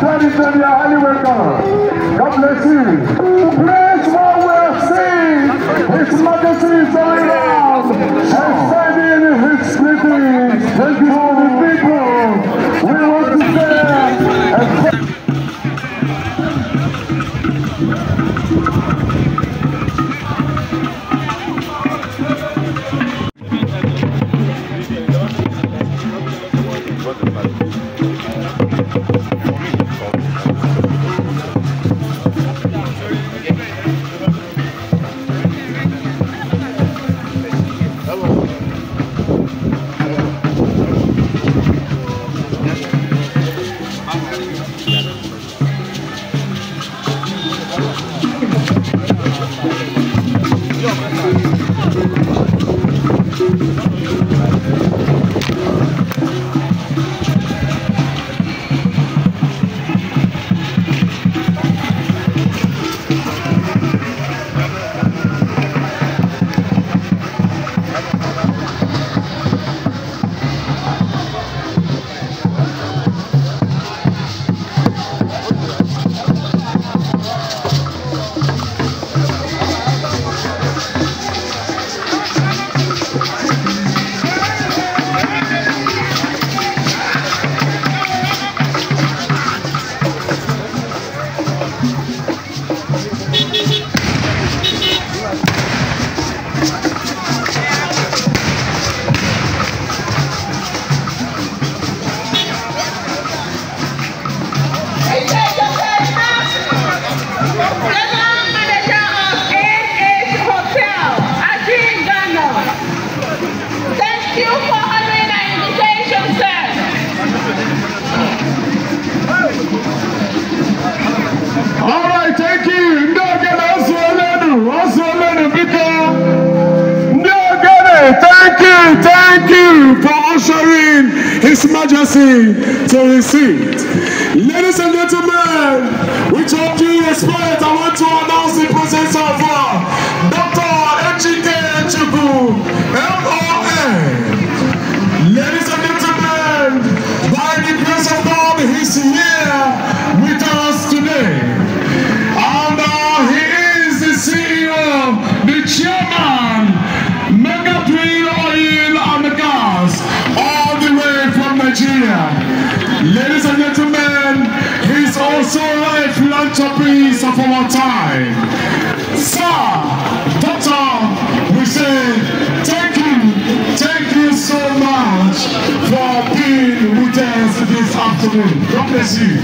Traditionally, a highly welcome. God bless you. Bless what we have seen. His majesty is around and sending his greetings. Thank you all the people. We want to receive. Ladies and gentlemen, afternoon. God bless you.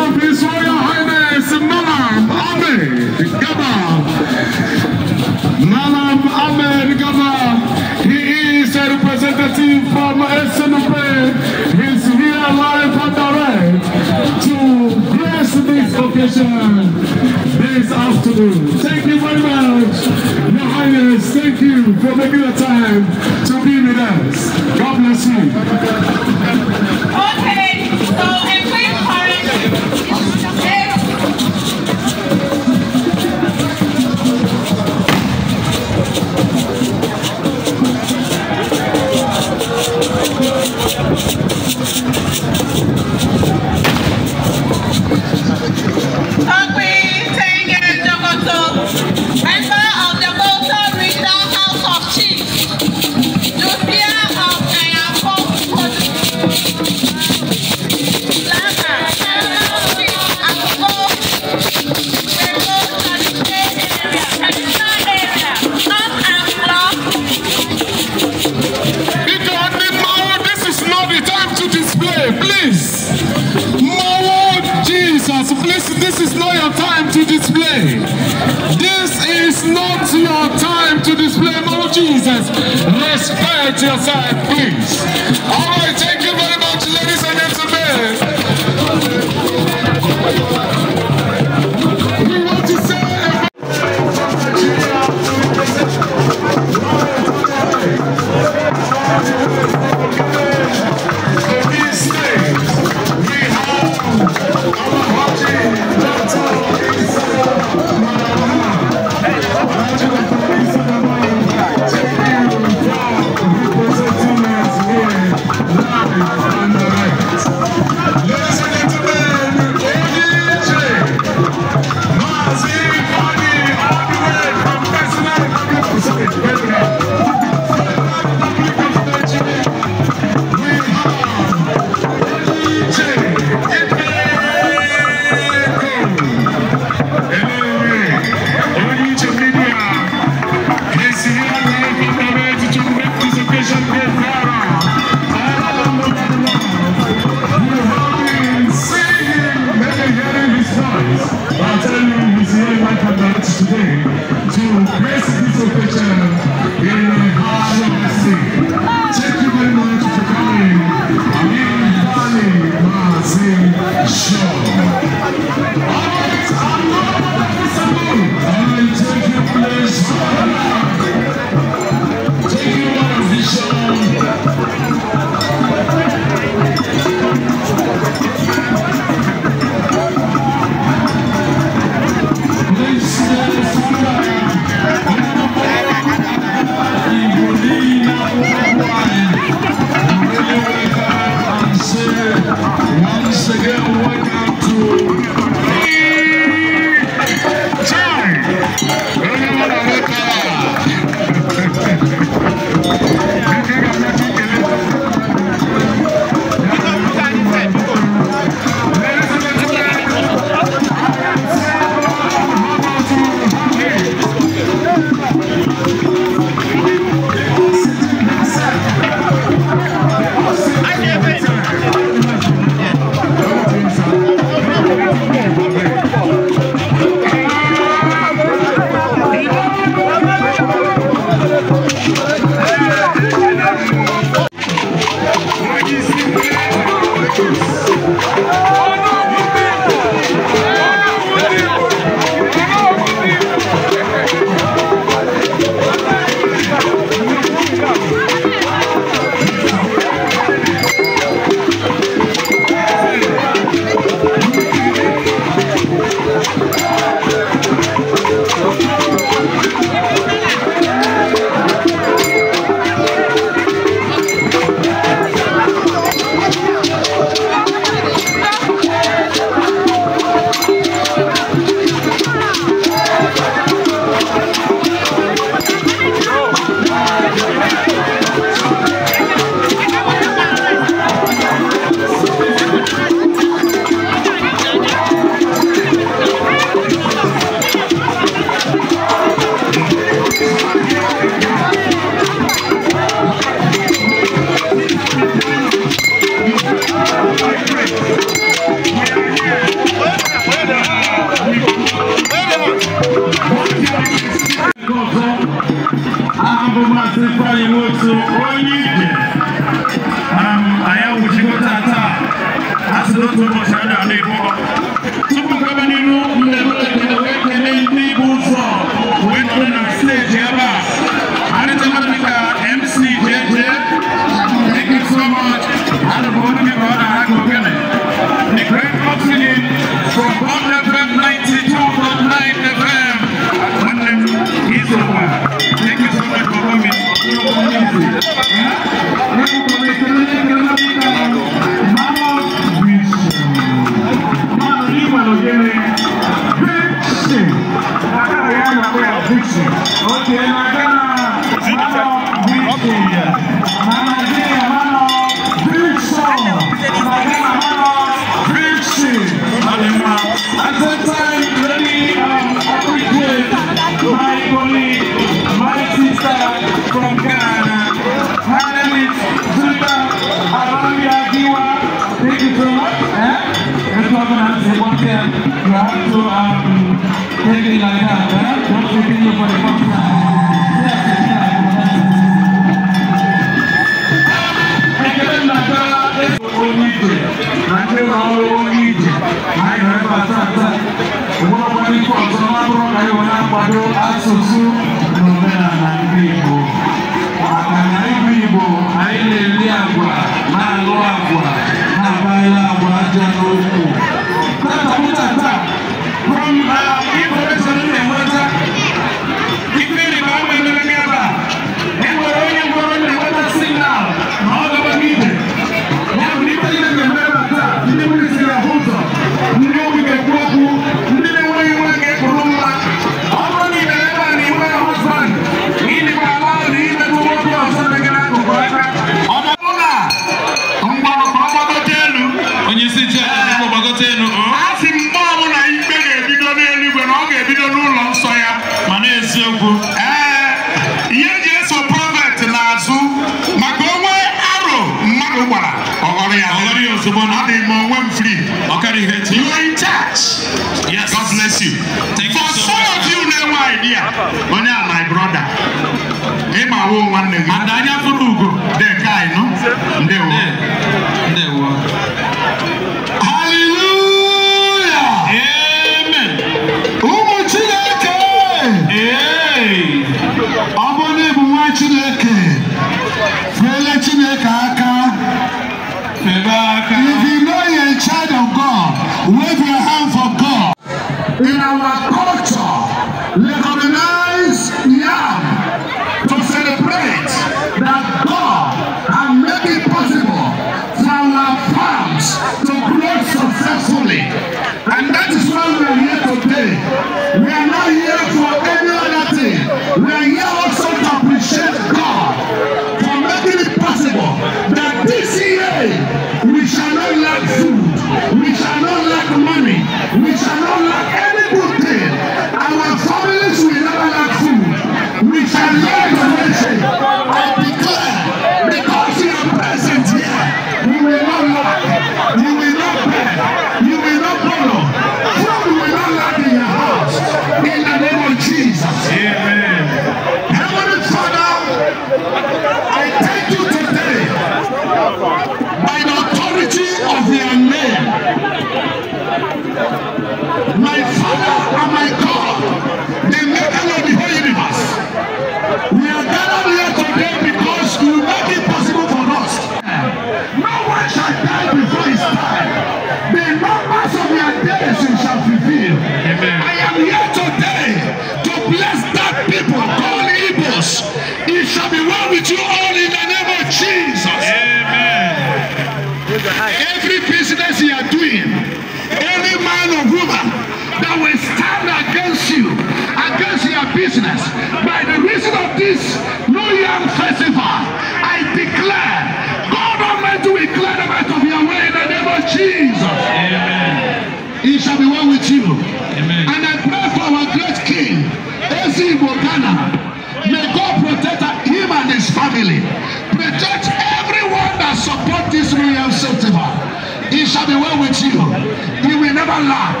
never lack.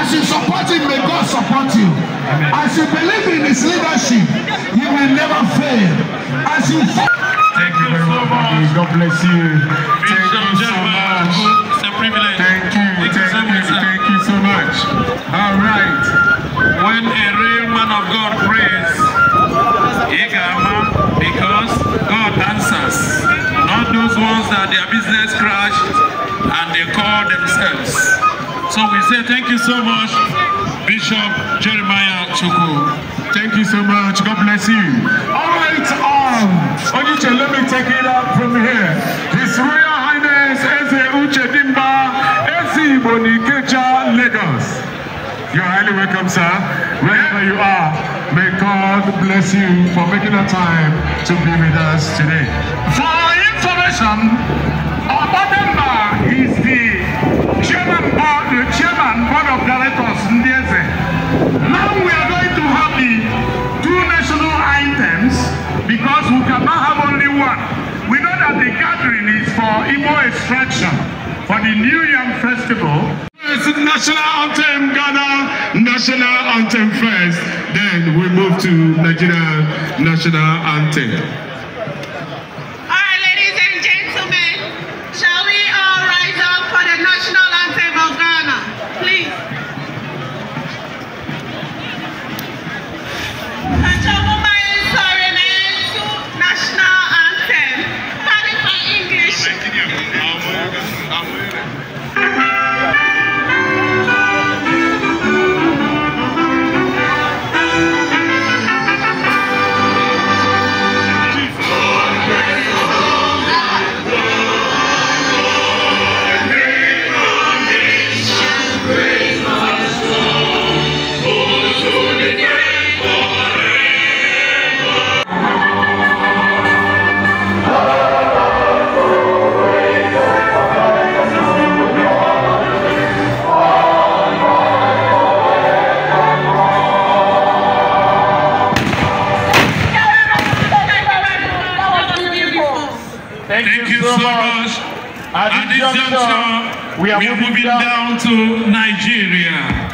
As you support him, may God support you. As you believe in his leadership, you will never fail. As you Thank you very much. God bless you. Thank you so much. It's a privilege. Thank you. Thank you, thank you, so much. All right. When a real man of God prays, he Igama, because God answers. Not those ones that their business crashed. say thank you so much, Bishop Jeremiah Choko. Thank you so much. God bless you. All right, um, Oniche, let me take it up from here. His Royal Highness Eze Uche Dimba, Eze Bonikecha, Lagos. You're highly welcome, sir. Wherever you are, may God bless you for making the time to be with us today. For information, Abadamba is the the chairman, board of directors, Ndieze. Now we are going to have the two national items because we cannot have only one. We know that the gathering is for Igbo extraction for the New Yam Festival. It's national anthem Ghana, national anthem first. Then we move to Nigeria national anthem. We are, moving down to Nigeria.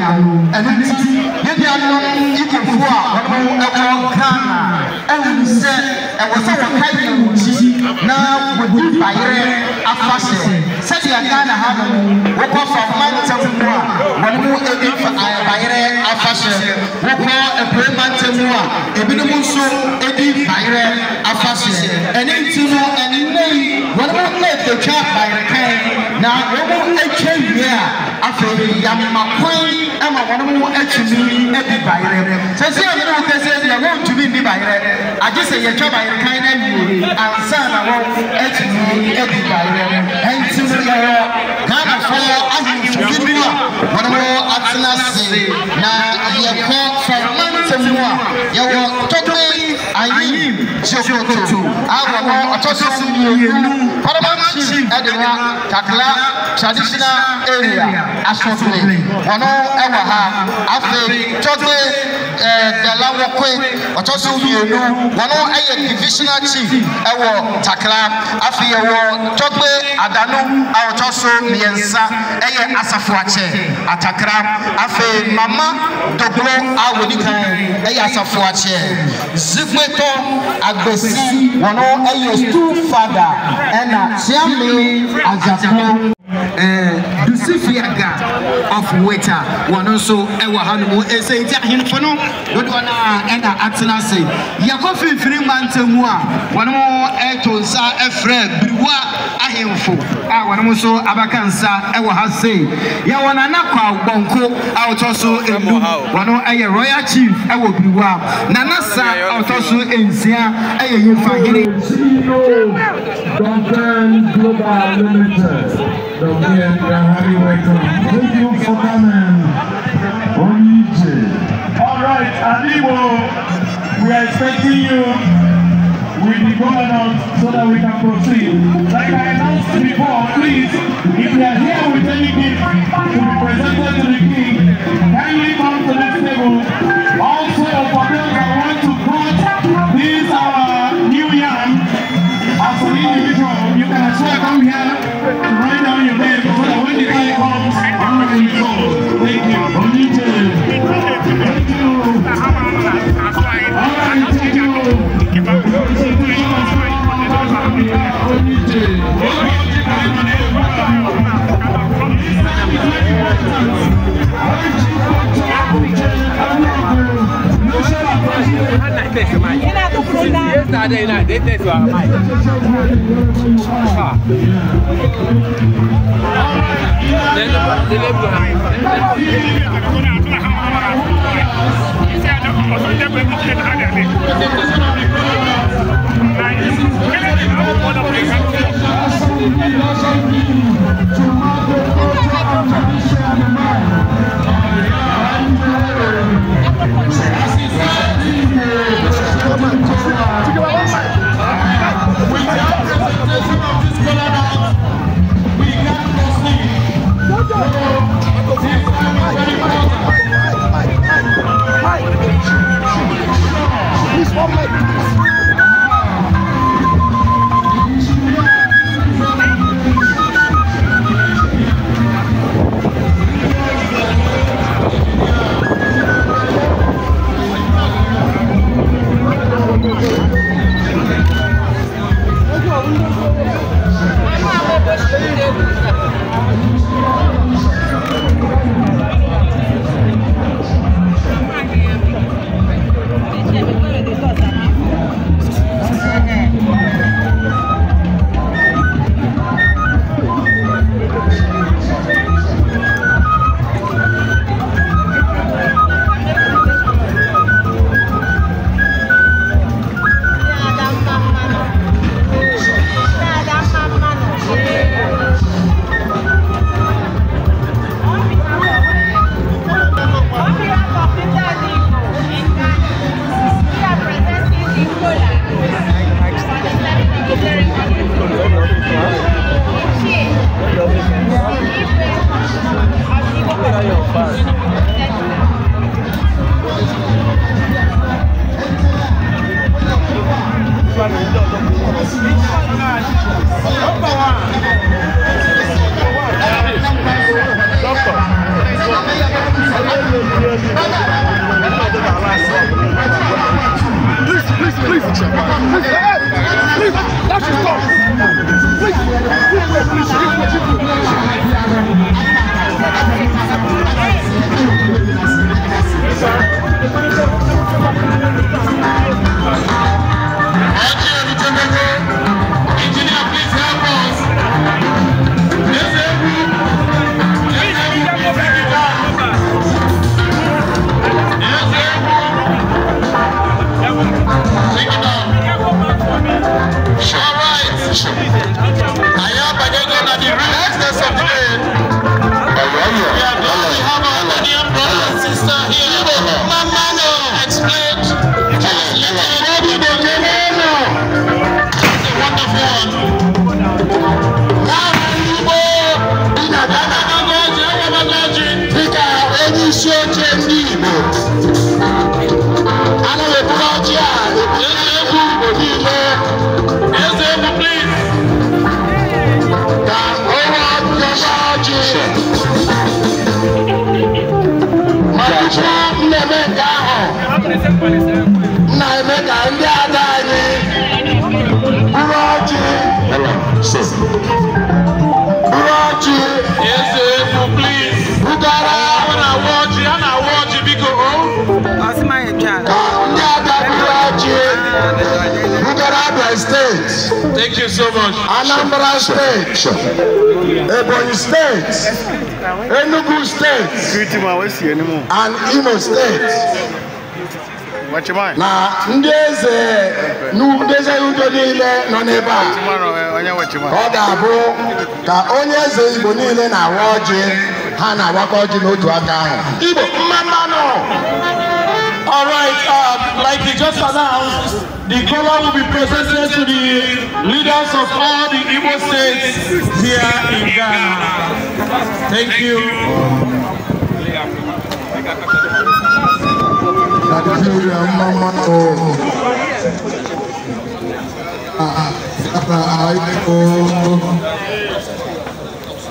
ɛno nti yɛdeɛ no ikofoɔ a wɔno ɛwɔ ghana ɛhunu sɛ ɛwɔ sɛ wɔkae wo kyi na wɔdi bayerɛ afa hyɛ sɛdeɛ ghana ha no wokɔ famantam mu a wɔne mu ɛdi bayerɛ afa hyɛ wokɔ apue mantam mu a ebinom nso ɛdi bayerɛ afa hyɛ ɛne nti no ɛnɛ yi wɔne mu na ɛtwa bayerɛ kan na wɔn mu atwa wie a afei yamma kwan ama wɔn mo atumi adi bayerɛ sɛsi a wɔn kɛseɛ deɛ wɔn ntumi nni bayerɛ agye sɛ yɛtwa bayerɛ kan na wie ansa na wɔn atumi adi bayerɛ ɛnti mo yɛwɔ ghana fɔ ahemfo bi a wɔn mo atena se na yɛkɔ fɔ mantam mu a yɛwɔ tɔtɔ ayim sokoto awɔmɔ ɔtɔso mmienu parliament chief ɛdina kakla traditional area asɔpere wɔn ɛwɔ ha afei tɔgbe ɛɛ dalawɔkoe ɔtɔso mmienu wɔn ɛyɛ divisional chief ɛwɔ takra afei ɛwɔ tɔgbe adanu a ɔtɔso mmiɛnsa ɛyɛ asafoakyɛ atakra afei mama dogoro a wɔdi kan zikpeto agbesi wɔn no yɛ stu fada ɛna siami adzakpo lucifiaga of weta wɔno nso ɛwɔ hanom ɛsɛ nti ahemfo no dodoɔ no a ɛna atena ase yɛkɔ mfimfini mantamu a wɔnom ɛto nsa ɛfrɛ biriwa ahemfo a wɔnom nso abaka nsa ɛwɔ ha sei yɛwɔ nana kwa bɔnko a wɔtɔ so ɛnu wɔno ɛyɛ royal chief ɛwɔ biriwa nana sa a wɔtɔ so nsia ɛyɛ yɛmfahene Duncan Global Limited. Dobrze, Harry, welcome. Thank you for coming. Onije. All right, Aliwo, we are expecting you with the governor so that we can proceed. Like I announced before, please, if you are here with any gift to be presented to the king, kindly come to this table. Also, for those that want to cut, these uh, new yam as an individual, you can as well come here to write down your Yesterday night, they text her, I'm like, ha. Tomorrow, culture, and tradition, man. Oh, yeah, my state. Thank you so much. Anambra state. Ebonyi state. Enugu state. And Imo state. na ndị eze ndị eze udo niile nọ n'ebe a ọ ga-abụ ka onye eze igbo niile na-awa ọjị ha na-awakọ ọjị n'otu aka ahụ igbo mmanụ All right, uh, like we just announced, the color will be presented to the leaders of all the Igbo states here in Ghana. Thank you. Nigeria, mama, oh.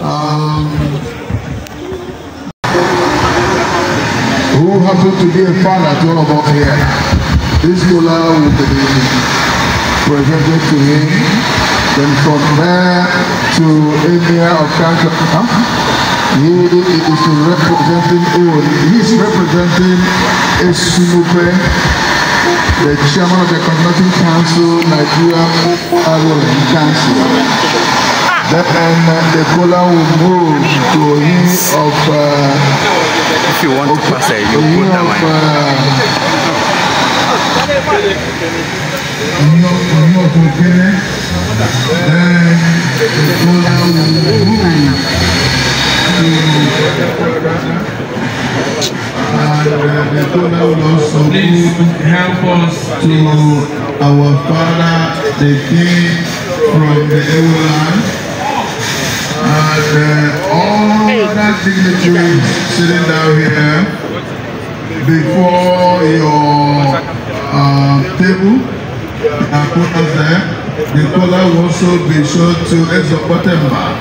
Uh, um, who happens to be a fan at all of us here. This scholar will be presented to him, then from there to Emir of Council. Huh? He is representing, oh, he is representing Esunupe, the chairman of the Conducting Council, Nigeria Agro Council. Then uh, the color will move to him of uh, if you want to pass it, you put that Please help us to our father, the king from the Ewoland, and uh, all other dignitaries sitting down here before your uh, table. And put us there. The color will also be shown to Ezopotemba,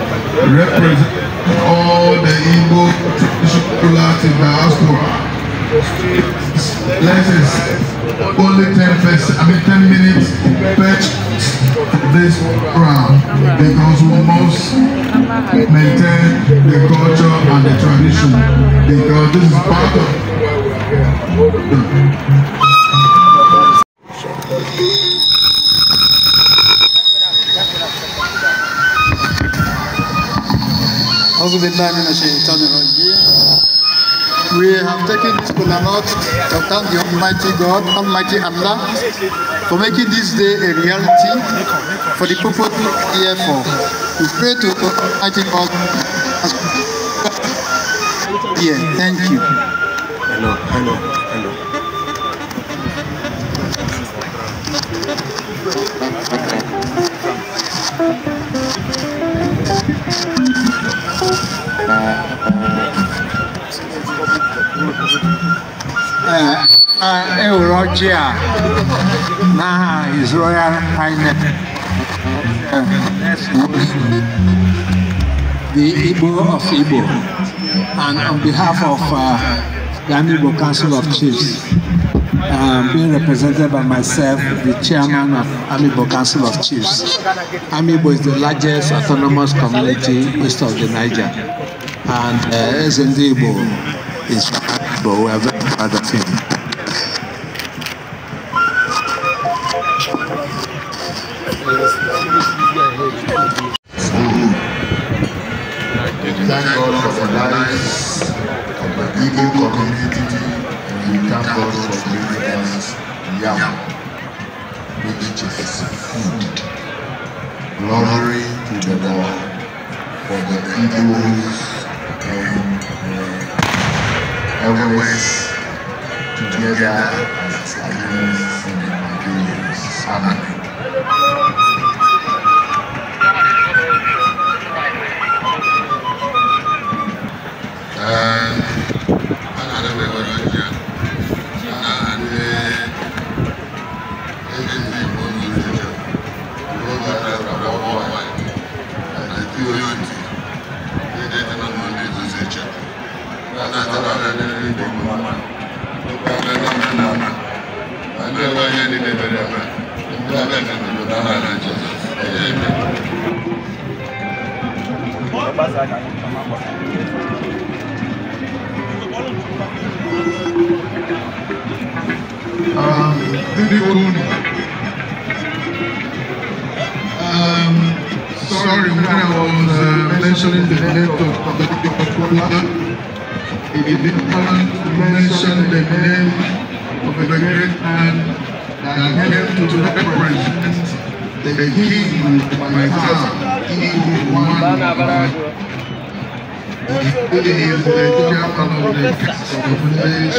representing all the Igbo traditional in the diaspora. Let's only 10 first, I mean 10 minutes per this round because we must maintain the culture and the tradition because this is part of أعوذ بالله من الشيطان الرجيم we have taken this kolanot to thank the Almighty God, Almighty Allah, for making this day a reality for the people here for. We pray to Almighty God. Yeah, thank you. Hello, hello. Eurogia eh, eh, eh, na His Royal Highness the Igbo of Igbo and on behalf of uh, the Igbo Council of Chiefs um, being represented by myself, the chairman of Amibo Council of Chiefs. Amibo is the largest autonomous community east of the Niger, and uh, Ezendebo is of him. Thank God for the lives of the Igbo community and we thank God for giving us yam, which is food. Glory to the Lord for the Igbos West.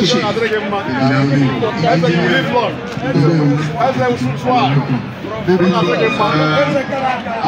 Ẹsẹ̀ Adéyẹmọ, ẹsẹ̀ Yunifọ̀n, ẹsẹ̀ Nsúfọ̀à, ẹsẹ̀ Adéyẹmọ, ẹsẹ̀ Káràkà. Káràkà.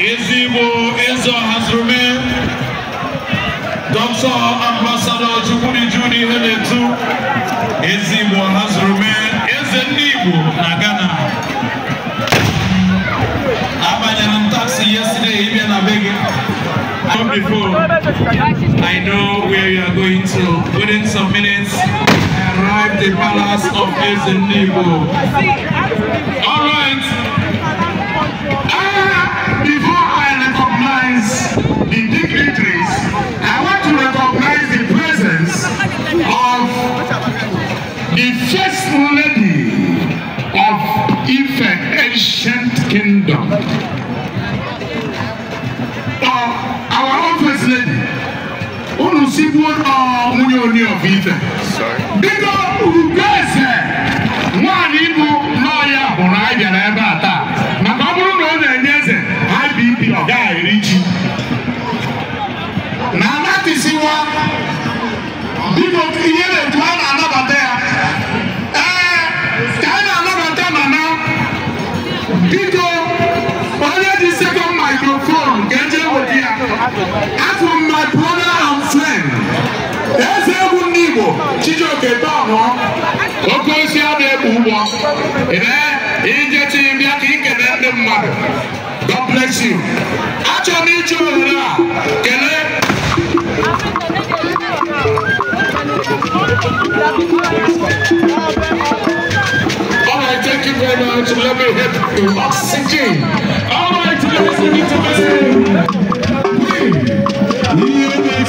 Ezigbo Ezo has remained. Dr. Ambassador Chukwudi Judy Heletu. Ezigbo has remained. Eze Nigbo na Ghana. Abanyere m taxi yesterday here na Come Before, I know where you are going to. Within some minutes, I arrived at the palace of Eze Nigbo. All right. Uh, our office lady, unu sibu uh, mwenye oni of Ife. Bigo ugeze nwaanyị bụ lọya bụrụ anyị bịara ebe a taa maka ọ bụrụ na ọ na-enye eze IBP ọ gaghị eri ji na anatisiwa biko As with my brother and friend, eze egwu ndị Igbo Chijioke Dọnụ oke osi a na-ekpu ụgbọ ije tinye bịa ka ikele ndị mmadụ God bless you. Achọrọ m iji ohere a kelee Alright, thank you very much. Let me help you oxygen. right, let's get to me.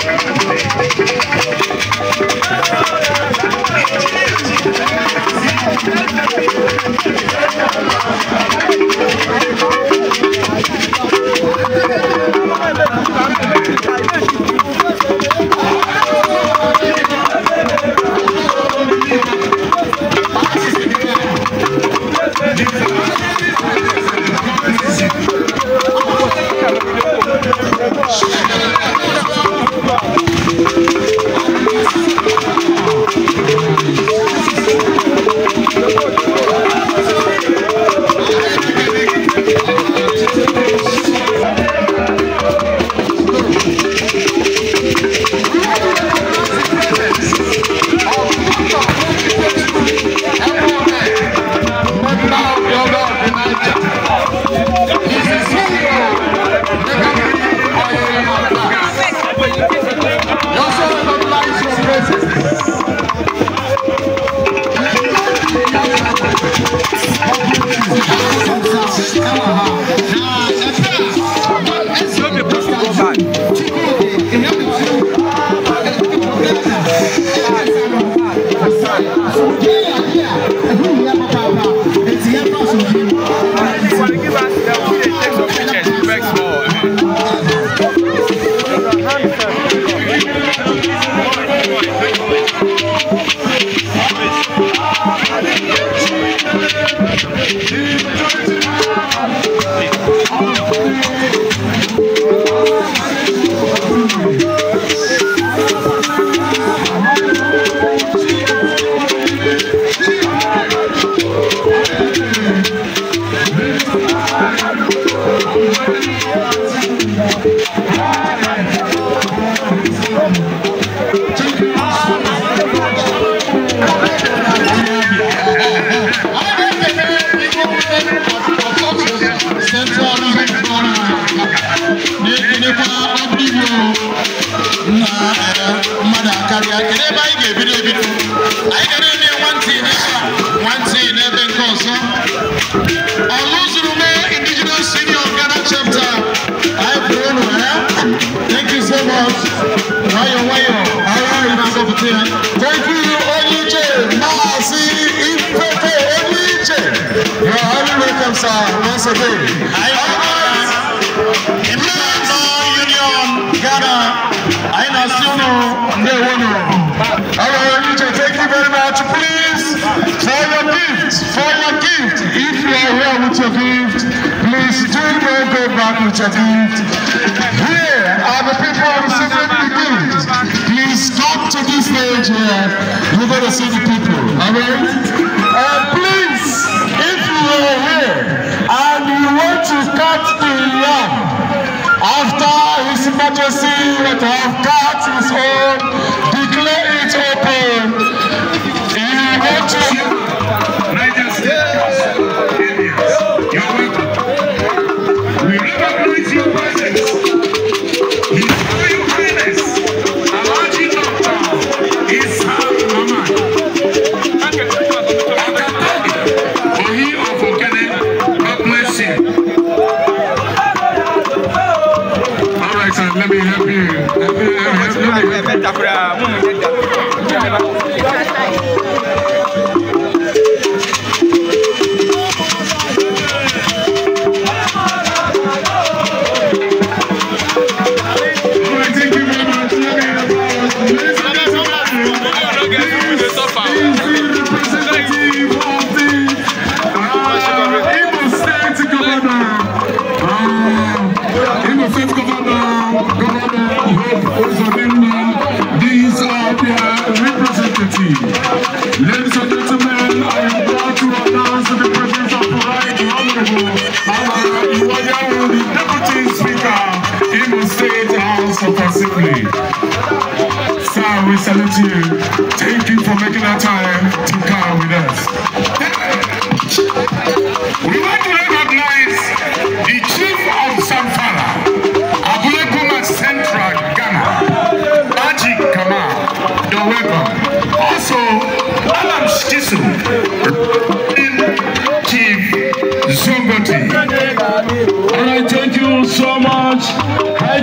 Thank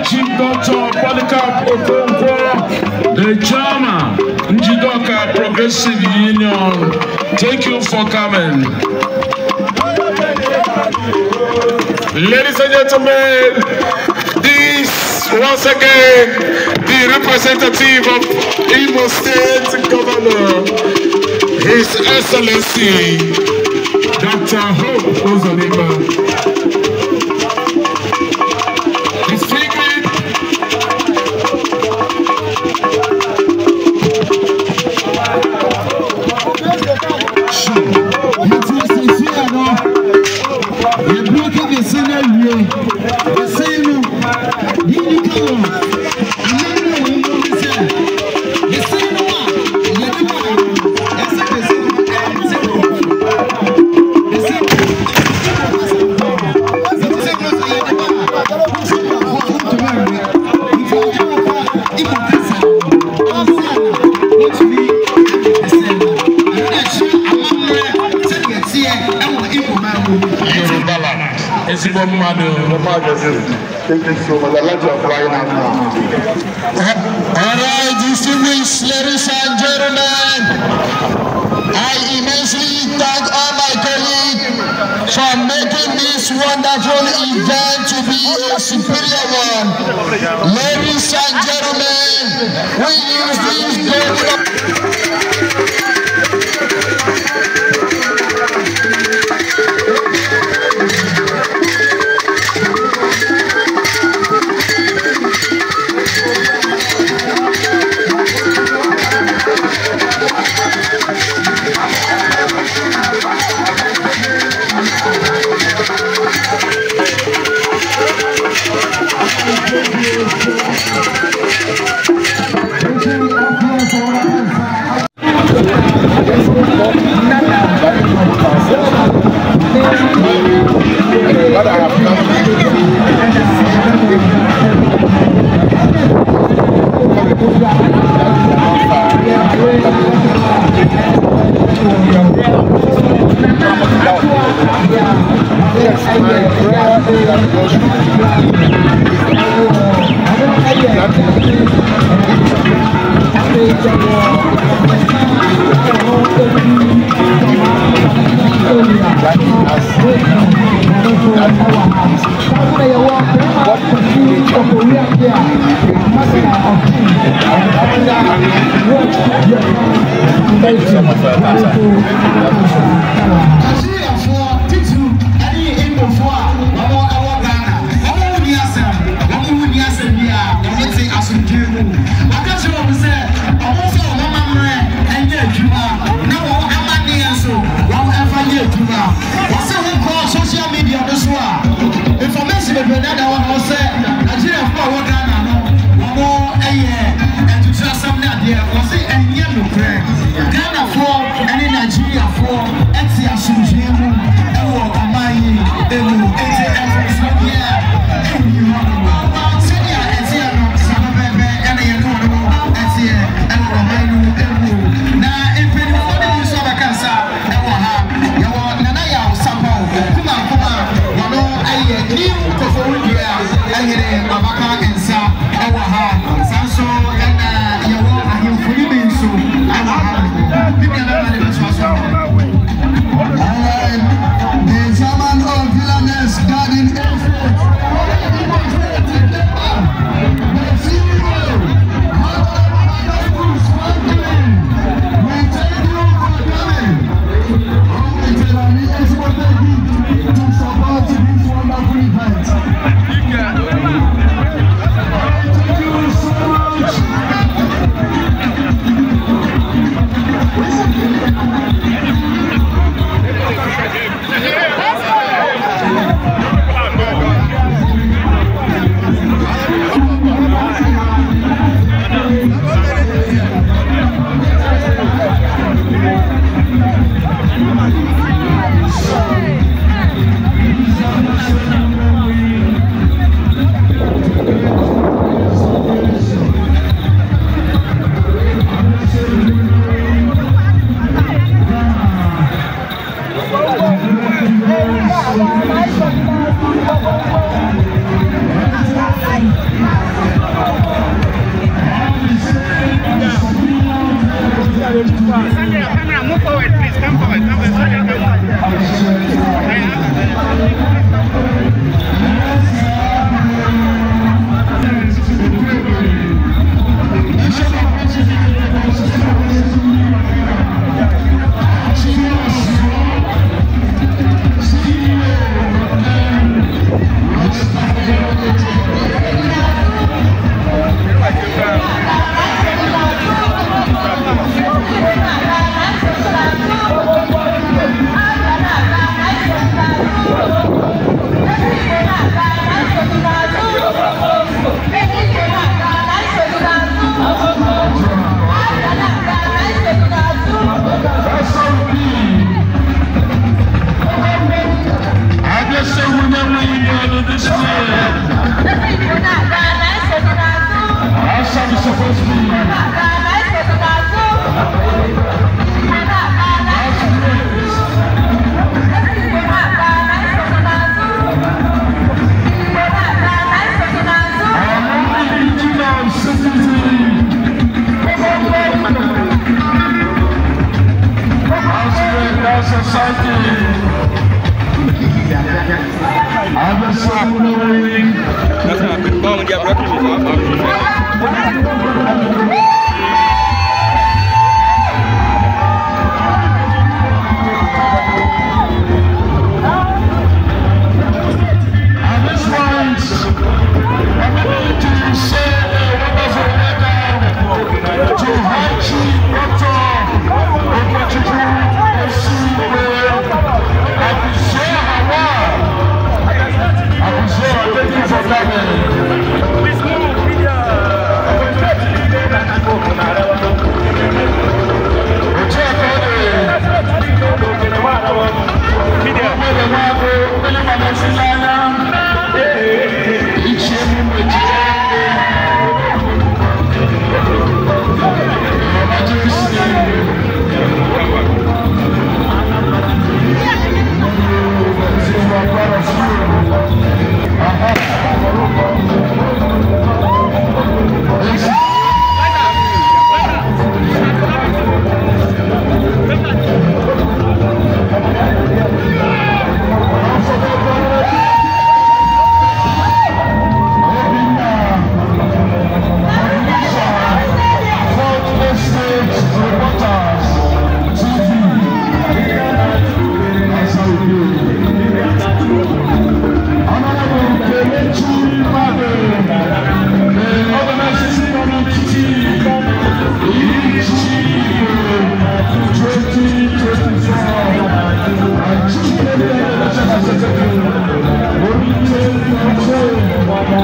Chief Doctor Polycarp Okonkwo, the chairman, Njidoka Progressive Union. Thank you for coming. Ladies and gentlemen, this once again the representative of Imo State Governor, His Excellency, Dr. Hope Ozoniba. magazine. Thank you so much. I like your flying out now. All right, distinguished ladies and gentlemen, I immensely thank all my colleagues for making this wonderful event to be a superior one. Ladies and gentlemen, we use this day. Thank you.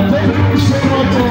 Thank you so much.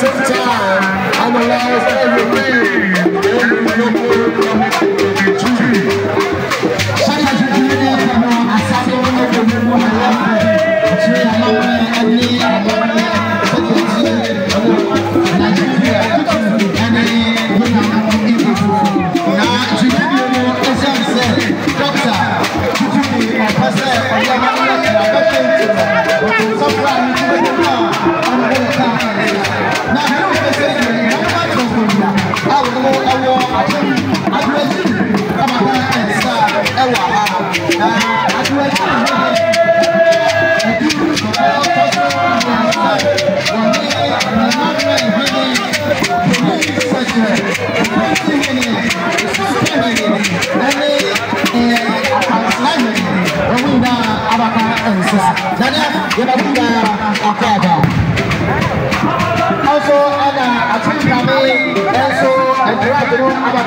same time. I'm the last ever man.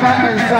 aba nsa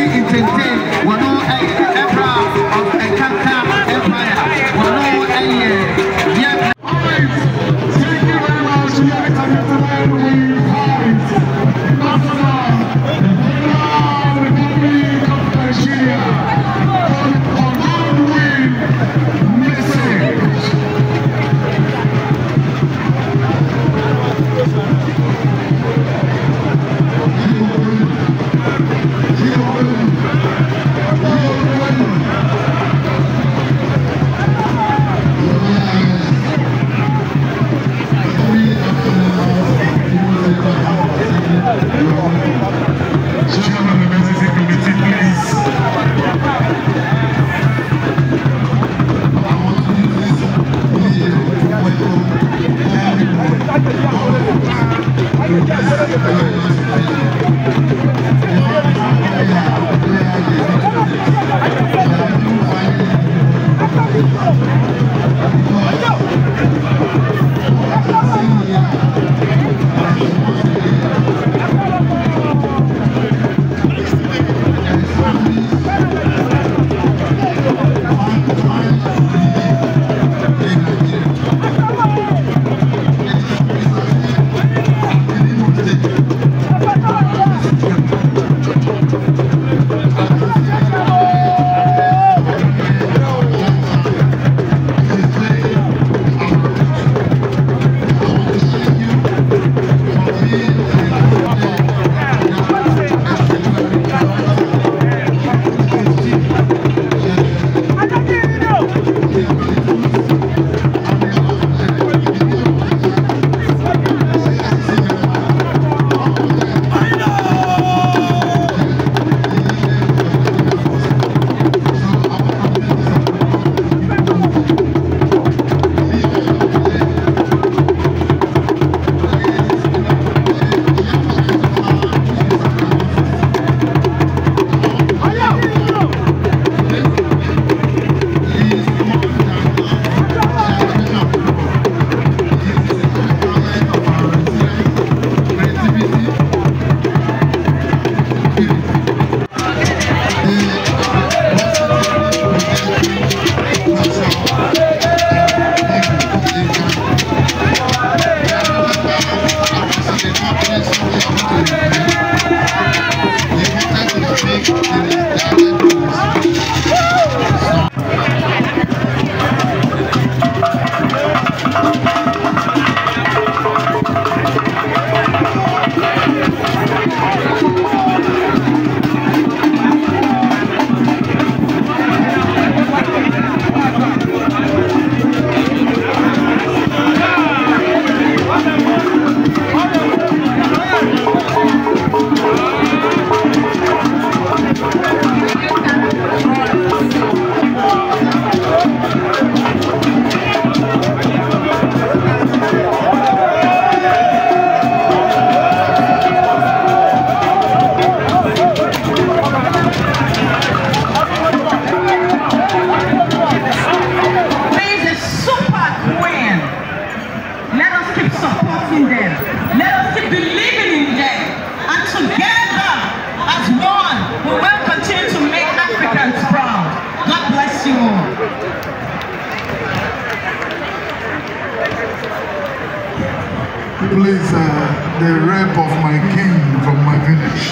replace uh, the rape of my king from my village.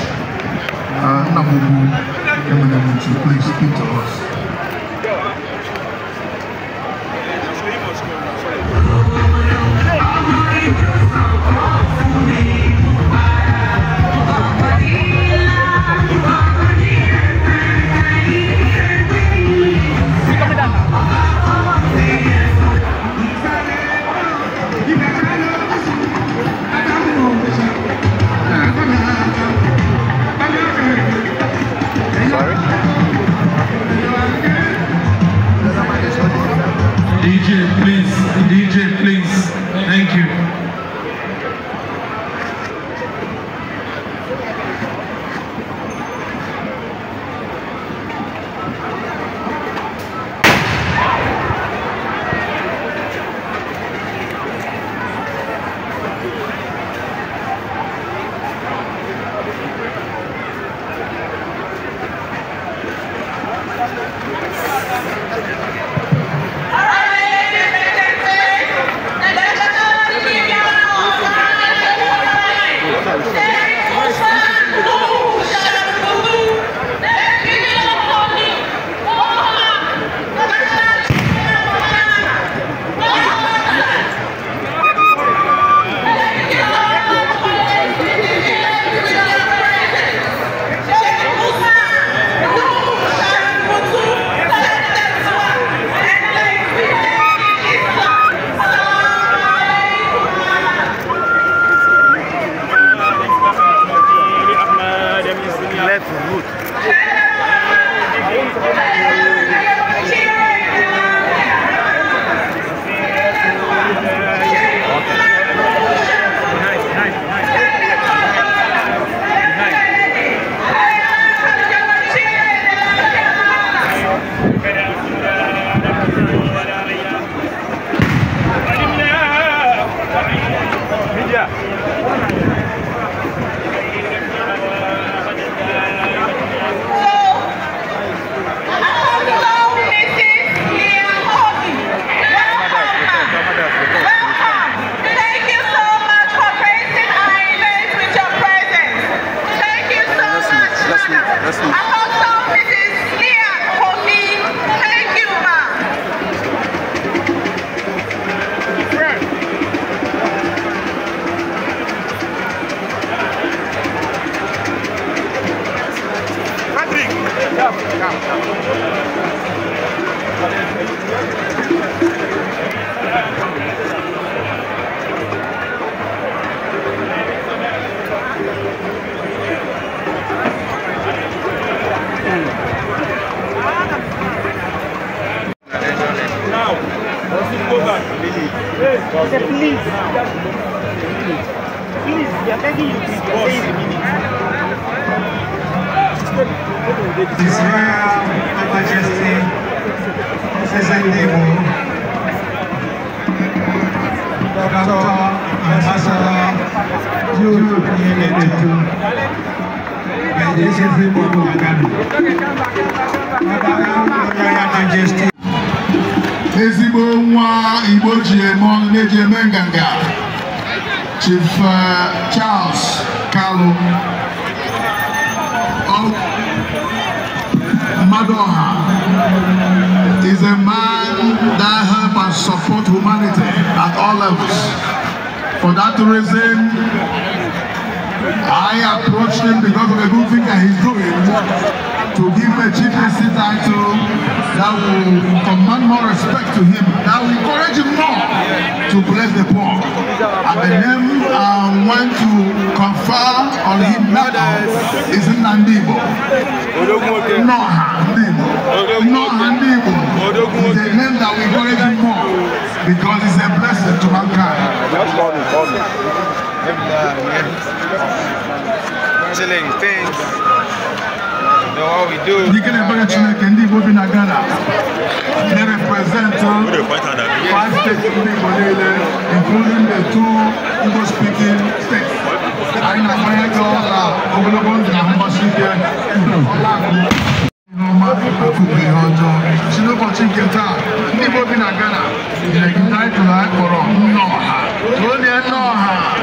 Uh, Namubu, Eminem, please speak to us. They are begging you to a minute. His Royal Majesty, President Debo, Dr. Ambassador Jules Nyenetu, and this is the Bobo Agami. Royal Majesty. Ezigbo nwa Igbo ji eme ọnụ na-eji eme nganga. Chief uh, Charles Kalu, of Madoha, is a man that help and support humanity at all levels. For that reason, I approached him because of the good thing that he's doing to give a GPC title that will command more respect to him, that will encourage him more to bless the poor. And the name I um, want to confer on him now is Nandibo. No Ndibo. no Ndibo It's a name that will encourage him more because it's a blessing to mankind. Chilling Thanks know what we do. Dikelebele Chineke ndị Igbo bi na Ghana na-represent uh, five states ndị Igbo niile including the two Igbo speaking states. Anyị na-akwanye gị ọla uh, ogologo ndụ na mgbasi ike ihe ọma akụkụ ihe ọjọọ si n'ụbọchị nke taa ndị Igbo bi na Ghana nyere gị taịtụl anyị kpọrọ Nneọha. Onye Nneọha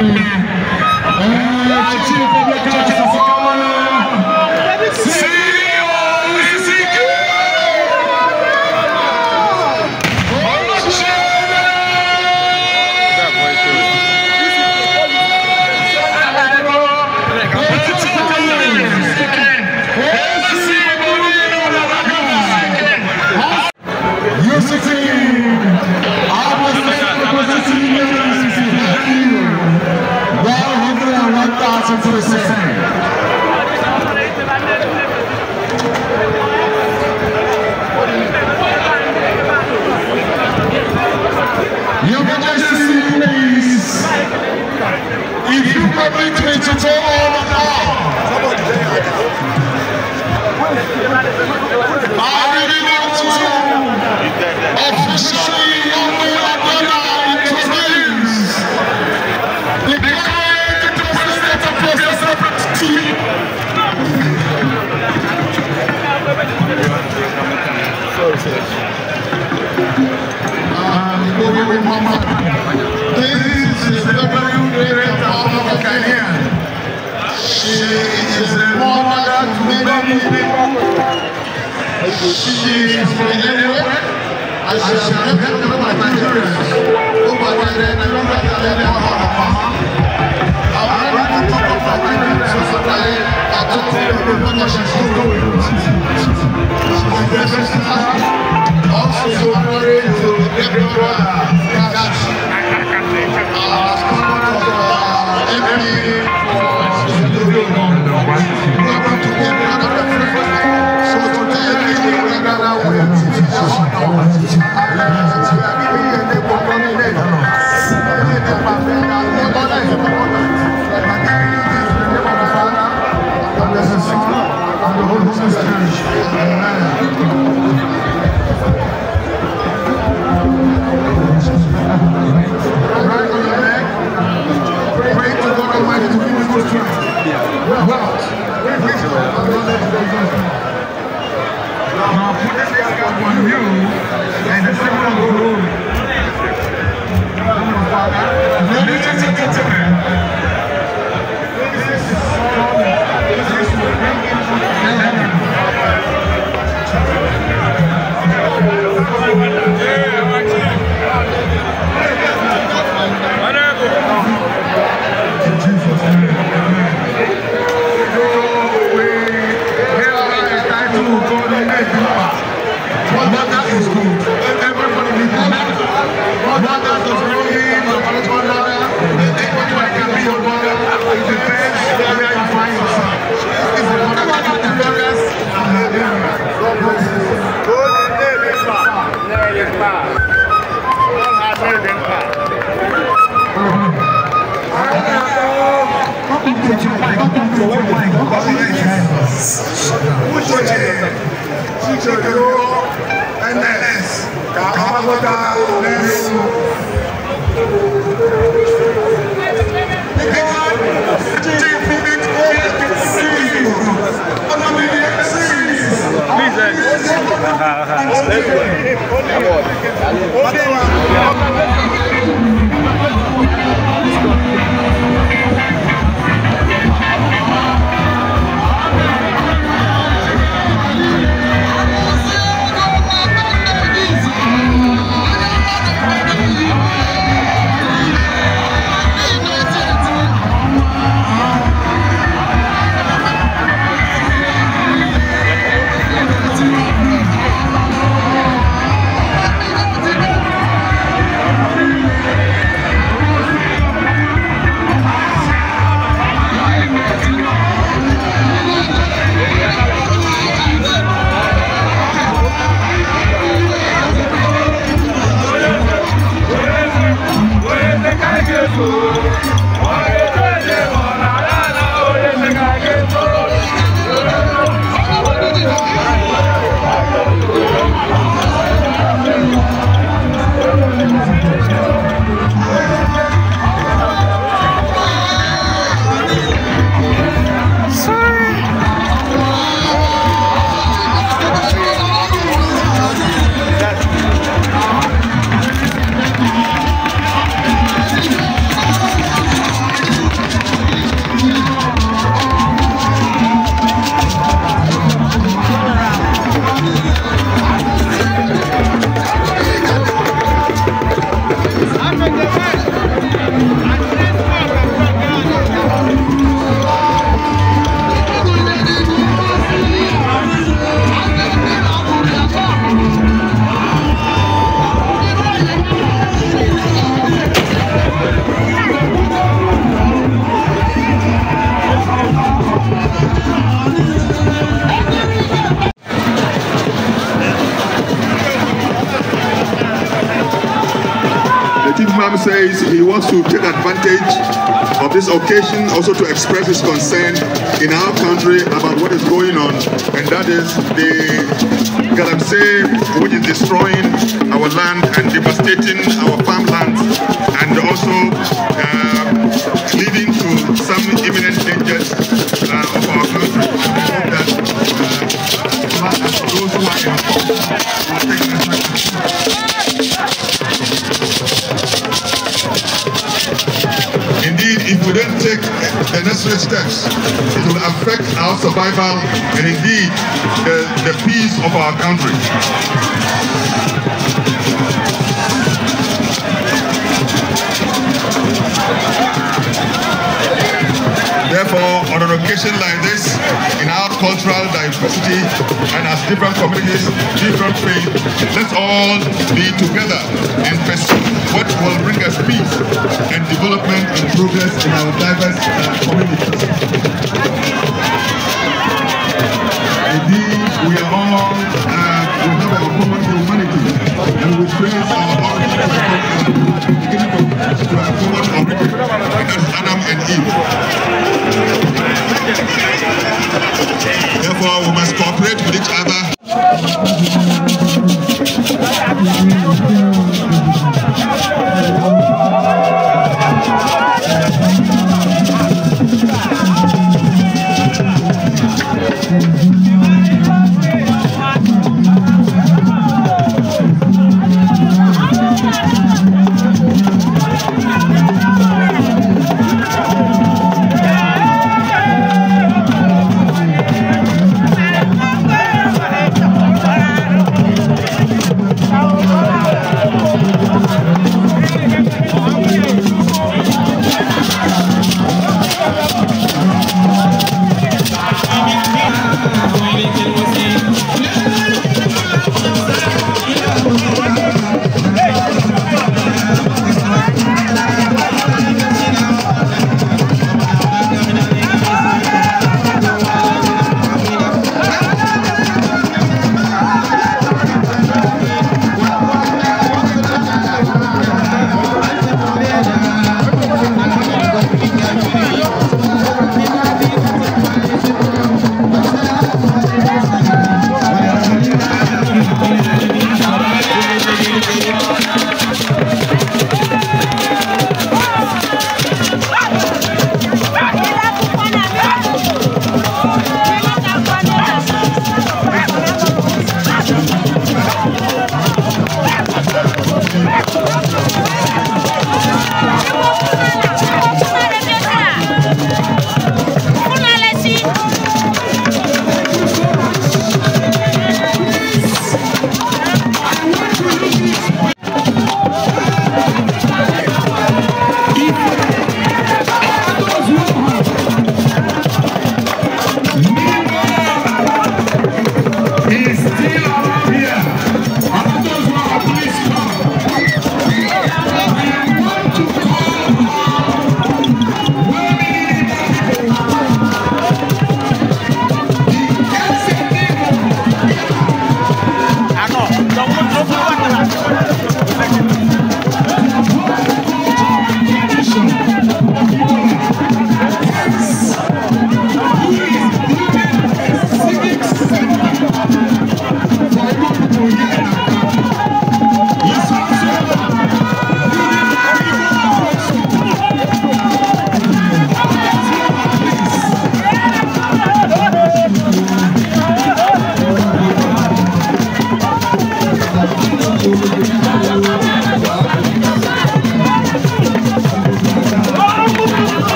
Eee, czy, czy powieka Your Majesty, please, if you permit me to I really want to officially This is the very great power of Ghanaian. She is a mother to many people. She is from anywhere. I shall help my children. NLS ka ọgbọta n'elu. Please, uh, uh, uh Jesus. also to express his concern in our country about what is going on, and that is the Galamsey, which is destroying our land and devastating our farm. steps. It will affect our survival and indeed the, the peace of our country. occasion like this, in our cultural diversity, and as different communities, different faith, let's all be together and pursue what will bring us peace and development and progress in our diverse uh, communities. Indeed, we are all, uh, we have our common humanity, and we praise our origin to our common origin, that's Adam and Eve. Therefore, we must cooperate with each other.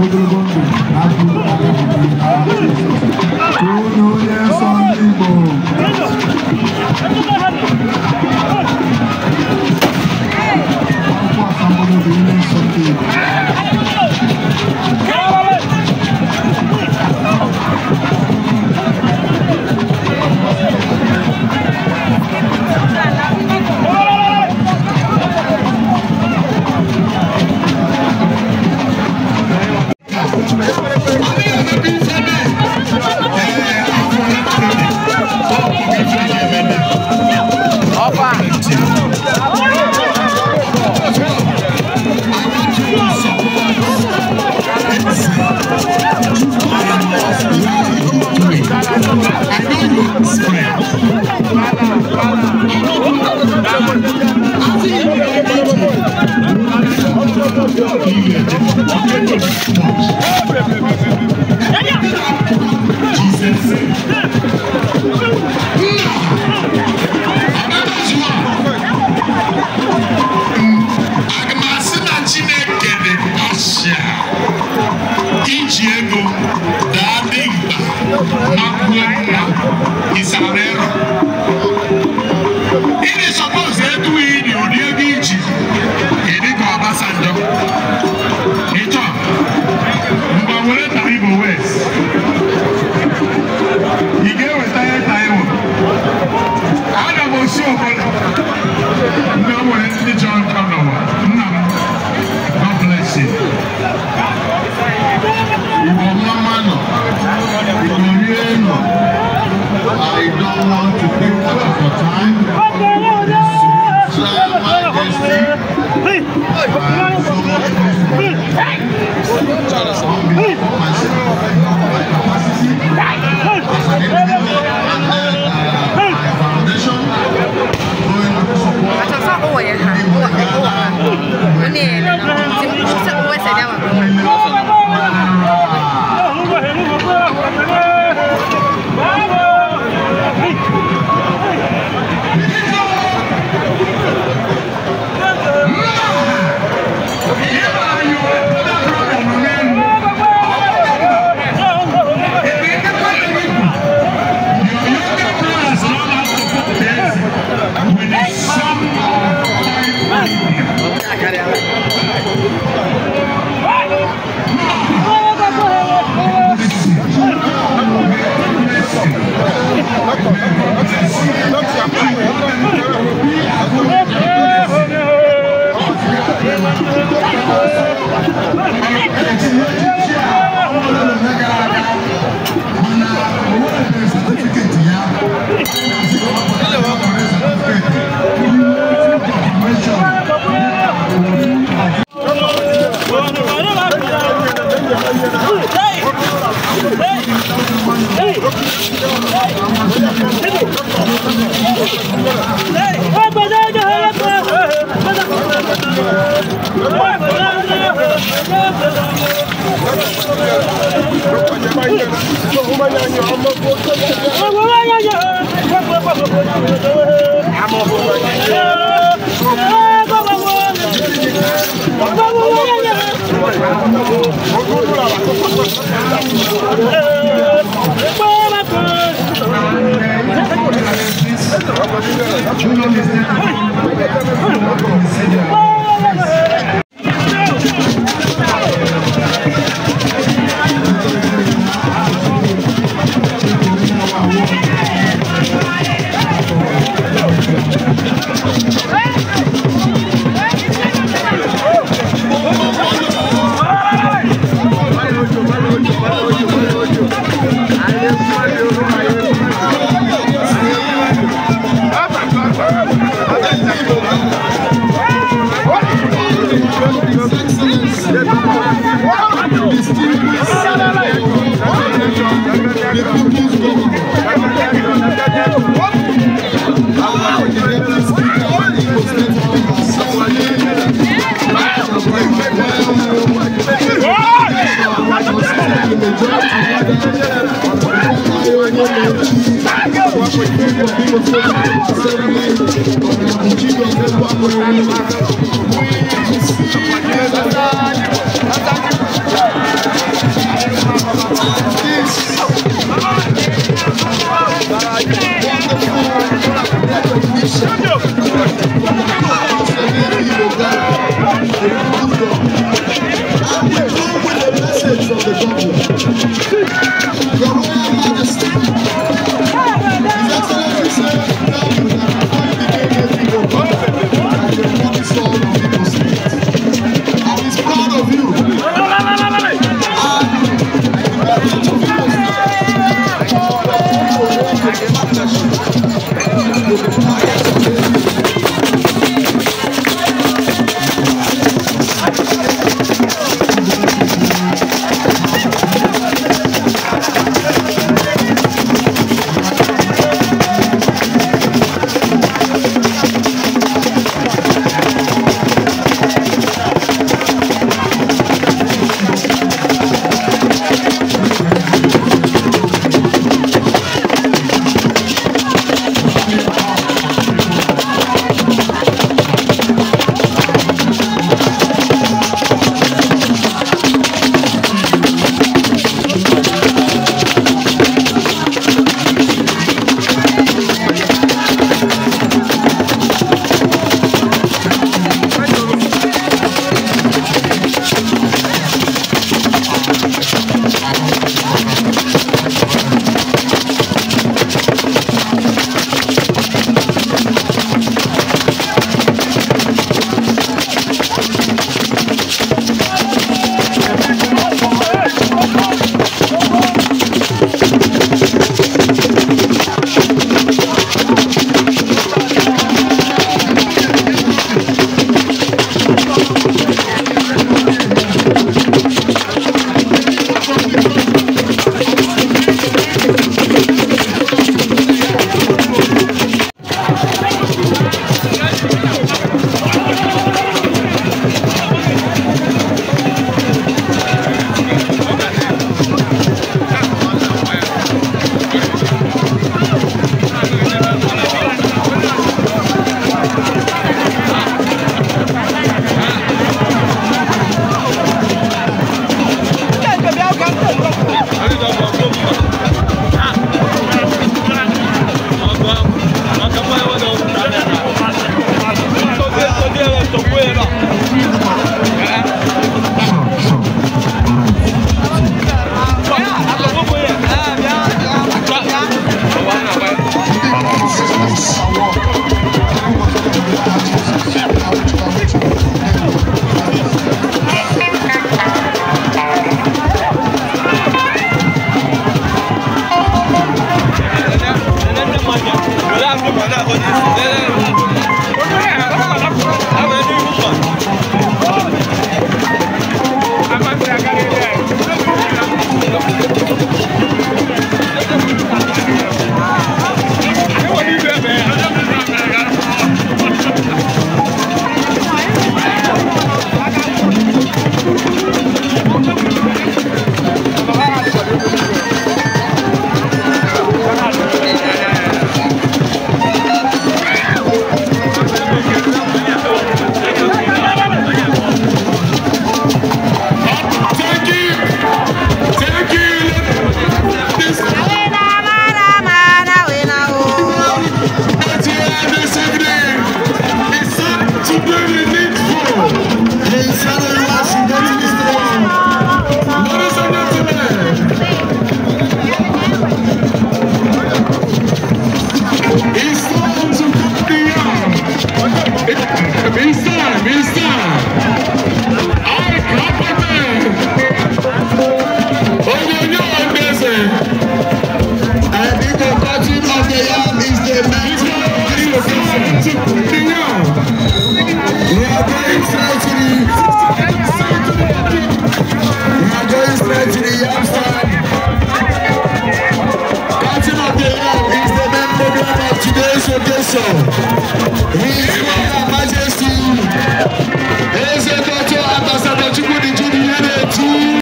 बुजुर्गों